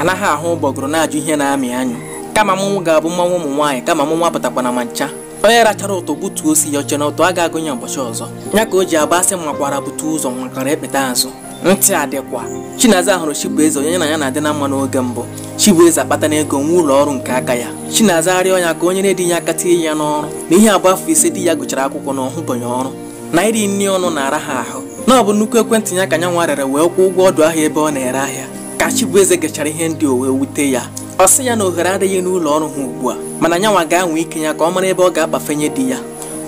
anaghị ahụ ụgbọgụrụ na-ajụ ihe na-amị anyụ kama mụnwụ ga-abụ mmanwụ ụmụ nwaanyị kama mụnwa na ma ncha onye rachara ụtọ gbutuo osi ya oche na ụtọ a ga-agụnye ụbọchị ọzọ ya ka o ji agba asị makwara butu ụzọ nwakara ekpeta azụ ntị adịkwa chinaza hụrụ chibueze onye na ya na-adị na mma n'oge mbụ chibueze akpata n'ego ego nwa ụlọ ọrụ nke aka ya chinaza arịọ ya ka onye na edinye ya aka tinye ya n'ọrụ na ihe abụọ afọ ise di ya gụchara akwụkwọ na ọhụbanye ọrụ na iri nri ọnụ na-ara ha ahụ na ọ bụ nnukwu ekwentị ya ka ya nwa rere wee kwụọ ụgwọ ọdụ ahịa ebe ọ na-ere ahịa ka Chibueze gachara ihe ndị owe wute ya ọ sị ya na ohere adịghị n'ụlọ ọrụ ha ugbu a mana nyanwa ga-anwe ike ya ka ọ mara ebe ọ ga-akpafenye di ya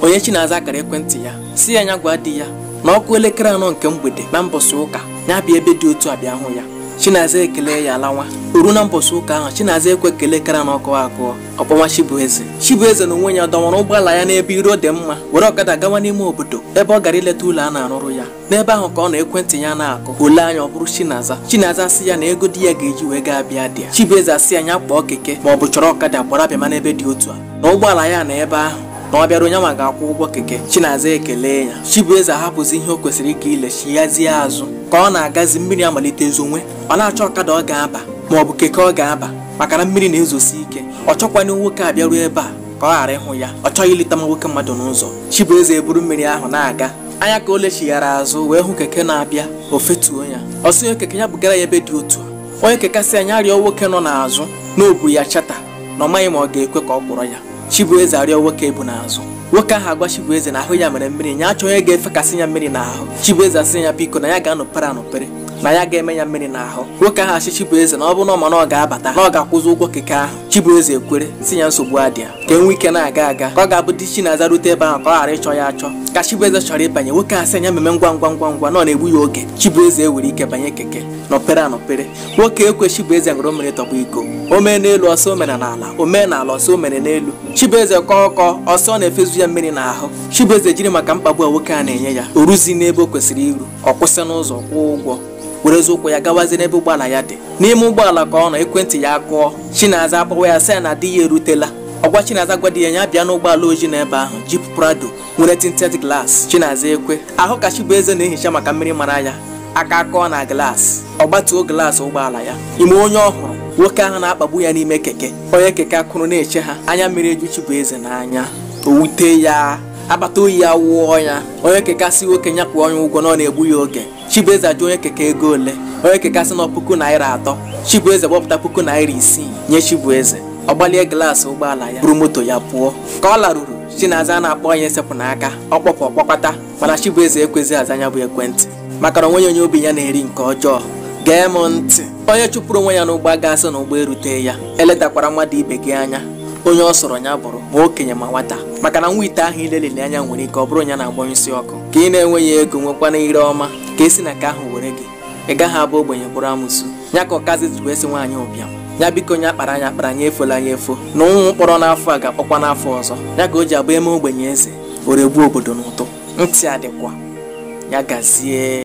onye chi na-aza akara ekwentị ya si ya nya gwa di ya na ọkụ elekere anọ nke mgbede na mbọsị ụka ya bịa ebe dị otu a hụ ya chinaza ekele ya lawa oru na mbọsị ụka ahụ chinaza ekwe ekele kara na ọkụ akụọ ọkpọwa chibueze chibueze na onwe ya dọwara ụgbọala ya n'ebe iro dị mma were ọkada gawa n'ime obodo ebe ọ gara ileta ụlọ a na-arụrụ ya n'ebe ahụ ka ọ na ekwentị ya na-akụ ole anya ọ bụrụ chinaza chinaza asị ya na ego di ya ga-eji wee gaa bịa dị ya chibueze asị ya nya kpọọ keke ma ọ bụ chọrọ ọkada gbara bịama n'ebe dị otu a na ụgbọala ya na ebe ahụ na ọ bịara onye nwa ga-akwụ ụgwọ keke chinaza ekele ya chibueze ahapụzi ihe o kwesịrị ịga ilechi yazie azụ ka ọ na-agazi mmiri amalite zonwe ọ na-achọ ọkada ọ ga-aba ma ọ bụ keke ọ ga-aba maka na mmiri na-ezosi ike ọ chọkwana nwoke a bịaruo ebe a ka ọ ghara ịhụ ya ọ chọghị ileta ma nwoke mmadụ n'ụzọ chibueze eburu mmiri ahụ na-aga anya ka o lechighara azụ wee hụ keke na-abịa o fetuo ya ọ sị keke ya bụgara ya ebe dị otu onye kekasị anya arịọ nwoke nọ n'azụ na ya chata na ọ maghị ma ọ ga-ekwe ka ọ kpọrọ ya Chibueze arịọ nwoke bụ n'azụ nwoke ahụ agwa Chibueze na ahụ ya mere mmiri achọ achọghị ga-efekasị ya mmiri n'ahụ Chibueze asị ya biko na ya ga-anọpere anọpere na ya ga-eme ya mmiri n'ahụ nwoke ahụ achị Chibueze na ọ bụrụ na ọma na ọ ga-abata na ọ ga-akwụzi ụgwọ keke ahụ Chibueze ekwere si ya nsogbu adịa ka enwe ike na-aga aga ka ọ ga-abụ di Chinaza rute ebe ahụ ka ọ ghara ịchọ ya achọ ka Chibueze chọrọ ịbanye nwoke ahụ si ya meme ngwa ngwa ngwa ngwa na ọ na-egbu ya oge Chibueze ewere ike banye keke nọpere anọpere nwoke ekwe Chibueze ṅụrụ mmiri tọgbọ iko o mee n'elu ọsọ o mere n'ala o mee n'ala ọsọ o mere n'elu Chibueze kọọ ọkọ ọsọ na-efezu ya mmiri n'ahụ Chibueze jiri maka mkpagbu a nwoke a na-enye ya o ruzi n'ebe o kwesịrị iru ọ kwụsị n'ụzọ kwụọ ụgwọ werezie ụkwụ ya gawazie n'ebe ụgbọala ya dị n'ime ụgbọala ka ọ nọ ekwentị ya kụọ chinaza akpọwa ya sị ya na di ya erutela ọgwa chinaza di ya ya bịa n'ụgbọala ojii n'ebe ahụ jip prado nwere tinted glass chinaza ekwe ahụ ka chibueze na-ehicha maka mmiri mara ya aka kọọ na glaasị ọ gbatuo glaasị ụgbọala ya ime onye ọhụrụ nwoke ahụ na-akpagbu ya n'ime keke onye keke akụrụ na-eche ha anya mmiri eju chibueze n'anya owute ya akpata oyi ya wụọ ya onye keke asị nwoke nyapụ onye ụgwọ na ọ na-egbu ya oge Chibueze ajụ onye keke ego ole onye keke asị na puku naira atọ Chibueze gbọpụta puku naira isii nye Chibueze ọ gbalie glaasị ụgbọala ya buru moto ya pụọ ka ọ laruru Chinaza na-akpọ onye sepụ n'aka ọ kpọpụ ọkpọkọta mana Chibueze ekwezi aza anya bụ ekwentị maka na onwenye onye obi ya na-eri nke ọjọọ gee m ntị onye chụpụrụ onwe ya n'ụgbọ gaasị na ụgbọ erute ya eletakwara mmadụ ibe gị anya onye ọ sọrọ ya bụrụ ma okenye ma nwata maka na nwa ite ahụ ilelili anya nwere ike ọ bụrụ ya na-agbanyụ isi ọkụ ka ị na-enweghị ego nwekwana ire ọma ka esi na ka ahụ were gị ị gaghị abụ ogbenye bụrụ amusu. ya ka ọkazi jiri esi nwaanyị ụbịam ya biko onye akpara anya akpara anya efola anya efo na ụnwụ mkpọrọ n'afọ a ga-akpọkwa n'afọ ọzọ ya ka o ji abụ eme ogbenye eze oregbuo obodo n'ụtụ ntị adịkwa ya gazie